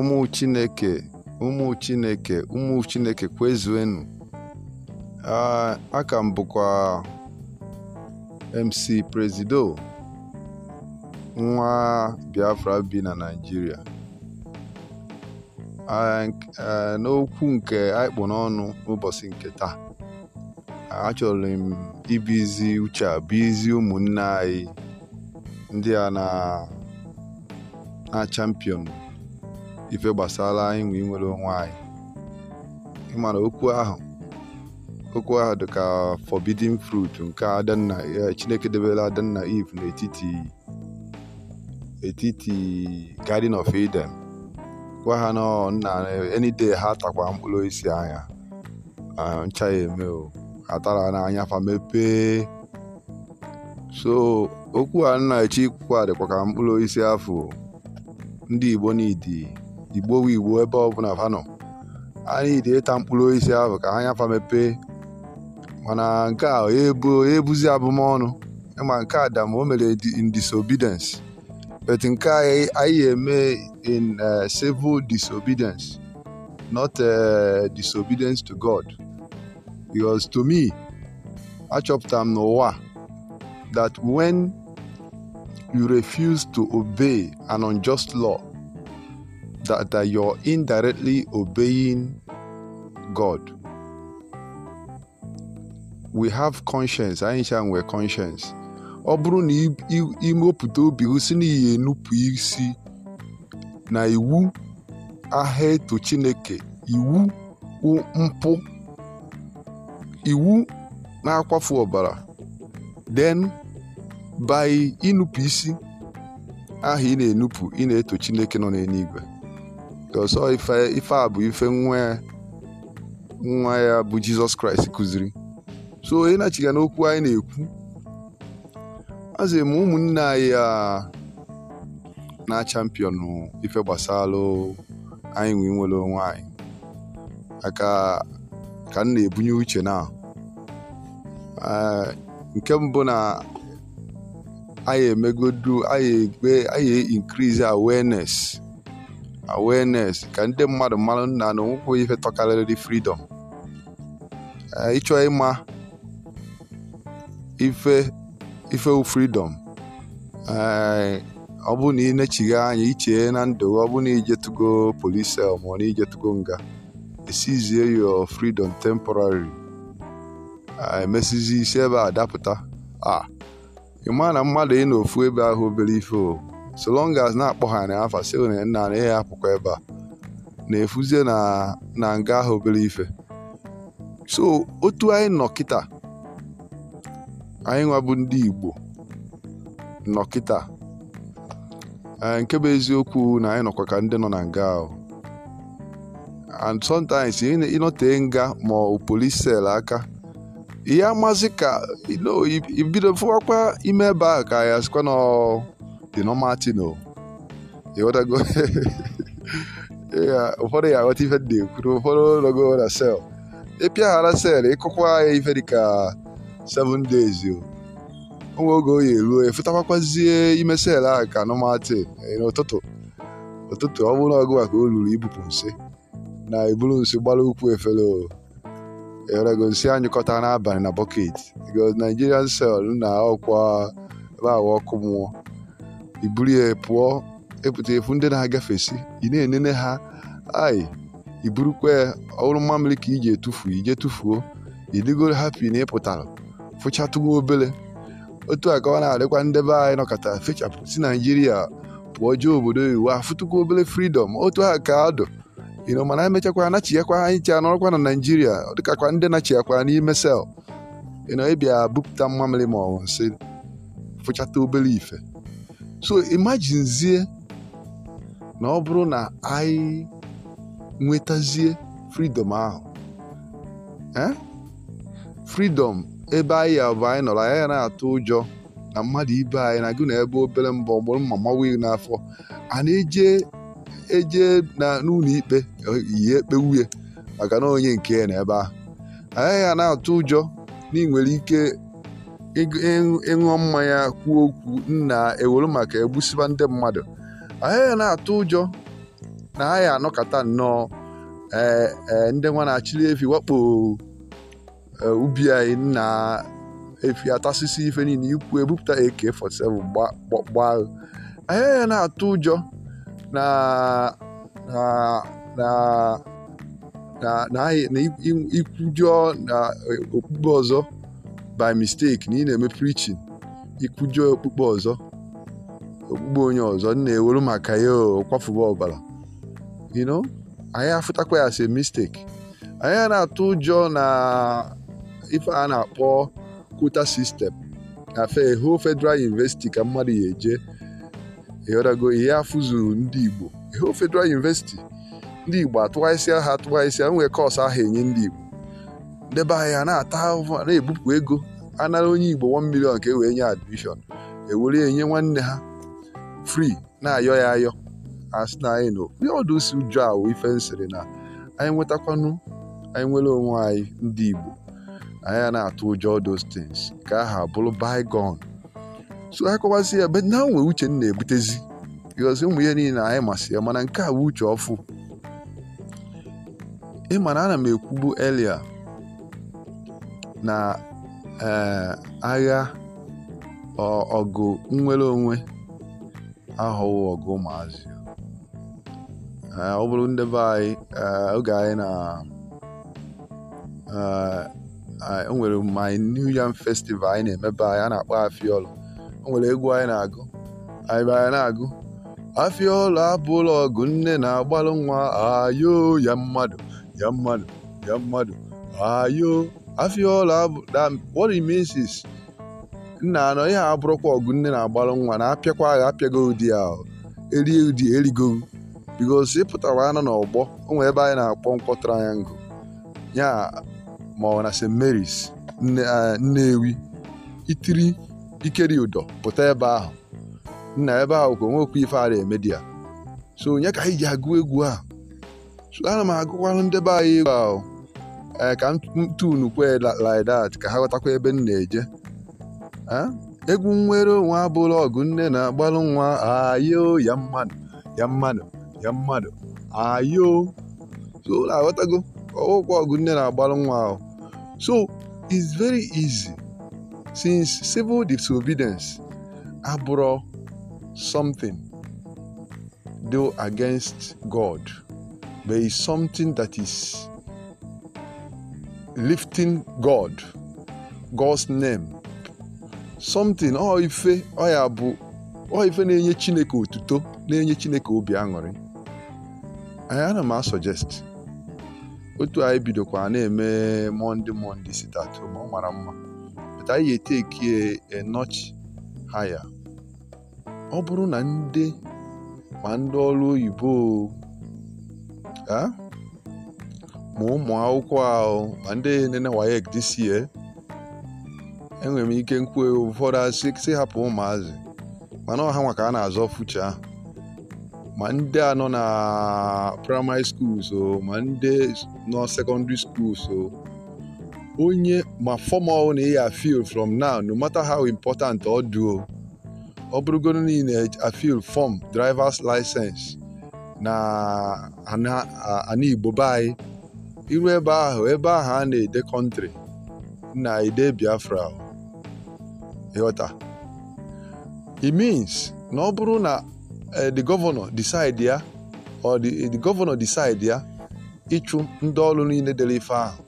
ụmụ chineke ụmụ chineke ụmụ chineke kwezuenu aka m bụkwa mc presido nwa biafra bi na naijiria n'okwu nke anyị n'ọnụ n'ụbọchị nke taa achọrọ m ibizi uche a izi ụmụnne anyị ndị a na champion ife gbasara inwe inwere onwe anyị ịmara okwu ahụ okwu ahụ dị ka forbidden fruit nke adanna e, chineke debere adanna eve n'etiti etiti garden of eden gwa ha na nna any ha takwa mkpụrụ isi anya ncha ya eme o atara n'anya fa mepee so okwu a nna echi ikwukwa dịkwa ka mkpụrụ osisi afọ ndị igbo n'idi igbowe igbo ebe ọbụla vanọ Anyị na-ide ịta mkpụrụ osisi ahụ ka ha nyafa mepee mana nke a ebuzi e abụmọnụ ịma nke a o mere in disobedience but nke e, anyị eme in e, civil disobedience not disobedience to God because to me achọpụtara m n'ụwa that when you refuse to obey an unjust law that, that you're indirectly obeying God. We have conscience, anyị cha nwere conscience. Ọ bụrụ na imepụta obi gị si na ihe enupụ isi na iwu aha eto Chineke iwu mpụ iwu na-akwafu ọbara then by inupụ isi aha ị na-enupụ ị na-eto Chineke nọ n'eluigwe ọsọ ife a bụ ife nwa ya nwa ya bụ jizọs kraịst kụziri so onye na-achiga n'okwu anyị na-ekwu azị ma ụmụnne anyị a na champion ife gbasalụ anyị nwe nwere onwe anyị aka ka m na-ebunye uche na nke mbụ na anyị emegodu anyị increase awareness awareness ka ndị mmadụ mara na na onwekwughị ife tọkarịrị freedom eh, ịchọ ịma ife ife freedom eh, ọ bụ na ị na anya iche na ndụ ọ bụ na ijetugo police cell ma ọ na ijetugo nga esizie your freedom temporary eh, emesizi isi ebe a dapụta a ah, ị maa na mmadụ ị na ofu ebe ahụ obere ife o so long as na-akpọghara ya afa si na nna na ya apụkwa ebe a na-efuzie na nga ahụ obere ife so otu anyị nọ kịta anyị nwabụ ndị Igbo nọ kịta e, nke bụ eziokwu na anyị nọkwa ka ndị nọ na nga ahụ and sometimes ịnọtee nga ma ọ polis sel aka ihe amazị ka ibido fụwakwa ime ebe ahụ ka ya sikwa na dị normal go ịghọtago ụfọdụ ya aghọta ife dị ekwuru ụfọdụ logo na sel ịpịa ghara sel ịkụkwa ya ife dịka 7 days o nwe oge oyi eruo efutakwazie ime sel ahụ ka nọmatị eh, n'ụtụtụ ụtụtụ ọ bụrụ ọgụ maka o ruru ibupụ nsị na eburu nsị gbara ukwu efere o erego nsị anyụkọta n'abalị na bọket go Nigerian sel na ọkwa ebe ahụ ọkụ mụọ. iburu buru ya pụọ epụta efu ndị na-agafesi ị na-enene ha ai i burukwa ọhụrụ mmamịrị ka iji etufu ije tufuo idigoro hapi na ịpụtara fụchatụgo obele otu a ka ọ na-adịkwa ndebe anyị nọkọta fechapụ si naijiria pụọ jee obodo iwu afụtụkwa obele fridọm otu ha ka adụ ịnọ mana emechakwa anachiakwa anyị chi anọrọkwa na naijiria dịkakwa ndị nachiakwa n'ime sel ịnọ ịbịa bupụta mmamịrị ma ọ nsị fụchata obere ife so imaginezie na ọ bụrụ na anyị nwetazie fridọm ahụ eh fridọm ebe anyị ya bụ anyị nọrọ anyị na-atụ ụjọ na mmadụ ibe anyị na gị na ebe obere mbọ ọgbụrụ mma mawa n'afọ a na-eje eje na n'ụlọ ikpe yie ekpe maka na onye nke na ebe ahụ anyị ya na-atụ ụjọ na ị nwere ike ịṅụọ mmanya kwuo okwu nna ewere maka egbusiba ndị mmadụ anyị na-atụ ụjọ na ahịa anọkọta nnọọ ndị nwa na-achịrị efi wakpo ubi anyị nna efi atasịsị ife niile ikwu ebupụta AK47 gba anyị na-atụ ụjọ na na ikwujọ na okpukpe ọzọ by mistake na ị na-eme preaching ikwujọ okpukpe ọzọ okpukpe onye ọzọ nna ewere maka ya kwafuba ọbara you know anyị afụtakwa ya as a mistake anyị na-atụ ụjọ na ife a na-akpọ kwota sistem afe ho federal university ka mmadụ ya eje ịghọtago ihe afụzuru ndị igbo ho federal university ndị igbo atụgharịsịa ha atụgharịsịa nwee kọọsụ ahụ enye ndị igbo debe anya na-ata ahụhụ na-ebupụ ego anara onye igbo 1 million ka e wee nye admishọn ewere enye nwanne ha fri na-ayọ ya ayọ asị na anyị nọ ndị ọdụ si awụ ife nsịrị na anyị nwetakwanụ anyị nwere onwe anyị ndị igbo anyị na-atụ ụjọ dostins things ka aha bụrụ bigon so ha kọwasị ya be na nwe uche m na-ebutezi because ụmụ ihe niile anyị masị ya mana nke a bụ uche ọfụ ị ma na ana m ekwubu elia na e, agha ọgụ nnwere onwe aghọwo ọgụ ụmụazị e, ọ bụrụ ndị be anyị e, oge anyị na e nwere my new yam festival anyị na-emebe anyị a na-akpọ afiọlụ o nwere egwu anyị na-agụ anyị be anyị na-agụ afiọlụ abụla ọgụ nne na-agbalụ nwa ayo ya mmadụ ya mmadụ ya mmadụ ayo Afịọla that what it means is nna anọ ihe abụrụkwa ọgụ nne na-agbalụ nwa na apịakwa agha apịago ụdị ahụ erie ụdị erigo bikos ịpụtara anọ n'ọgbọ o nwere ebe anyị na-akpọ nkwọ triangle ya ma ọ na St. Mary's Nnewi eh, itiri ikeri ụdọ pụta ebe ahụ nna ebe ahụ ka onwekwa ife ara ya so onye ka anyị ji agụ egwu a so ana m agụkwara ndị be anyị egwu ahụ ee eh, ka ntunu kwe like that ka ha ghọtakwa ebe m na-eje egwu nwere onwe abụrụ ọgụ nne na-agbalụ nwa ayo ya mmadụ ya mmadụ ya mmadụ ayo so aghọtago ọgwụkwa ọgụ nne na-agbalụ nwa ahụ so it's very easy since civil disobedience abụrụ something do against God but it's something that is lifting God, God's name something ọ ife ọ ya bụ ọ ife na-enye Chineke otuto na-enye Chineke obi aṅụrị anyị ana m asọjesti otu anyị bidokwa na-eme monde monde si ma ọ mara mma pụta anyị eteki enochi haya ọ bụrụ na ndị ma ndị ọrụ oyibo ma ụmụ akwụkwọ ahụ ma ndị nene WAEC this year enwere m ike nkwu ụfọdụ asị si hapụ ụmụazị mana ọha nwa ka a na-azọ fucha ahụ ma ndị a nọ na praịmarị skuls o ma ndị nọ sekọndịrị skuls o onye ma fọmal na ị afil from now no mata ha important ọ dị ọ bụrụgoro na ị na-afil fọm drivers license na ana igbo be anyị iru ebe ahụ ebe ahụ a na-ede kọntrị na ide Biafra ịghọta it means na ọ bụrụ na eh, the governor decide ya or the governor decide ya ịchụ ndị ọrụ niile dere ife ahụ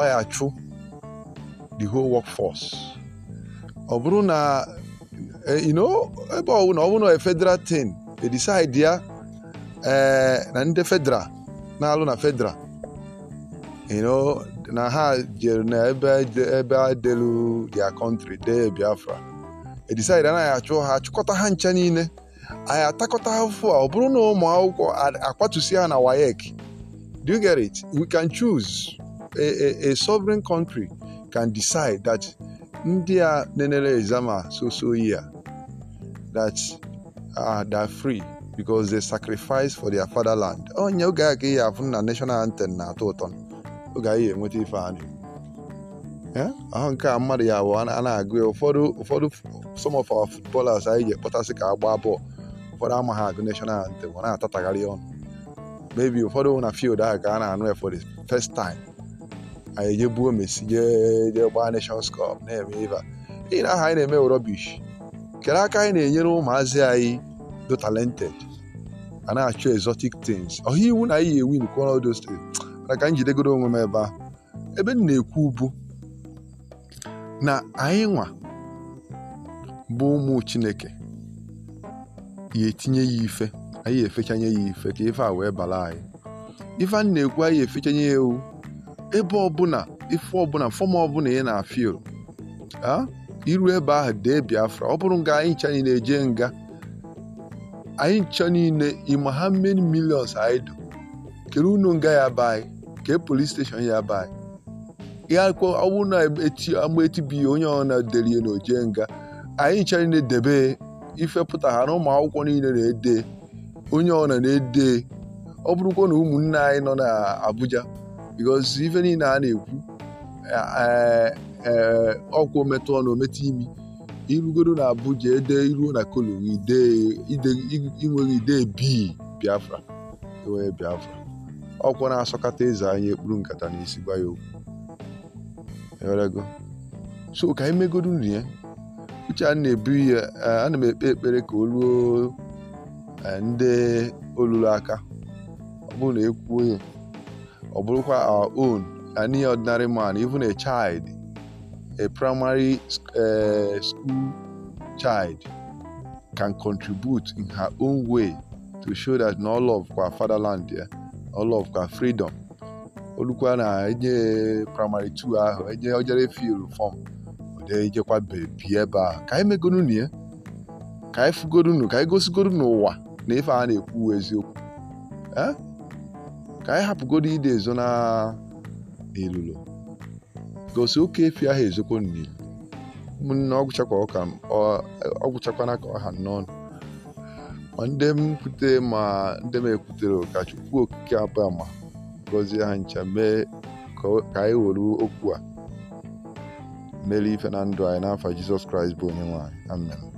ọ ya chụ the whole workforce ọ bụrụ na eh, ebe ọ na ọ bụrụ na federal thing e decide ya eh, na ndị federal na-alụ na federal na ha jere na ebe delu dia kọntri dee Biafra e decide anaghị achụ ha achụkọta ha ncha niile anyị atakọta ha afụfụ a ọ bụrụ na ụmụ akwụkwọ akwatusi ha na wayek do you get it we can choose a, a, a sovereign country can decide that ndị a nenere exama so so year that uh, ah, they're free because they sacrifice for their fatherland onye oge a ka ihe afụ na national anthem na-atọ ụtọ oge anyị ga-enweta ife anyị ahụ nke a mmadụ ya abụọ a na-agụ ya ụfọdụ ụfọdụ some of our footballers anyị ji ekpọtasị ka agba bọọlụ ụfọdụ amaghị agụ national anthem ọ na-atatagharị ọnụ mebi ụfọdụ na fiild ahụ ka a na-anụ ya for first time anyị ejebuo Messi jee gbaa Nations na-eme iva n'ihi na aha anyị na-eme rọbish kedu aka anyị na-enyere ụmụazị anyị do talented a na-achọ exotic things ọha iwu na anyị yi win kwọrọ those na ka njidegoro onwe m ebe ahụ ebe m na-ekwu bụ na anyị nwa bụ ụmụ chineke ya etinye ya ife anyị efechanye ya ife ka ife a wee bala anyị ife a na-ekwu anyị efechanye ya ewu ebe ọbụla ife ọbụla fọm ọbụla ị na-afịl a iru ebe ahụ dee biafra ọ bụrụ nga anyị ncha niile eje nga anyị ncha niile ịma ha many millions anyị dụ kere unu nga ya be anyị jee polis steshọn ya bai ya akwụkwọ ọ bụrụ na onye ọ na-edere ihe na ojee nga anyị ncha na-edebe ifepụta ha na ụmụ akwụkwọ niile na-ede onye ọ na-ede ọ bụrụkwa na ụmụnne anyị nọ na n'Abuja because ife niile a na-ekwu ee ọkwụ metụ ọnụ ometụ imi irugoro na Abuja ede iruo na kolo inweghị ide bii Biafra enwee Biafra ọkwa na-asọkata eze anya ekpuru nkata na isi gwa ya okwu so ka anyị megoro nri ya uche a na-ebu ya ana m ekpe ekpere ka o ruo e, ndị olulu aka ọ bụrụ na ekwuo ya ọ bụrụkwa our own any ordinary man even a child a primary e, school child can contribute in her own way to show that no love for fatherland yeah, all of ka freedom olukwa na enye primary 2 ahụ enye ojere fil fọm ejekwa bebi ebe a ka anyị megorunu ya ka anyị fugorunu ka anyị gosigoro n'ụwa na ife a na-ekwu eziokwu ka anyị hapụgoro ide ezo na ilulo gosi oke efi ahụ ezokwo n'ilu ụmụnne ọgwụchakwana ka ọha n'ọnụ ma ndị m ma ndị m ekwutere ka Chukwu Okike abụ ma gọzie ha ncha mee ka anyị were okwu a mere ife na ndụ anyị n'afọ Jizọs Kraịst bụ onye nwanyị amen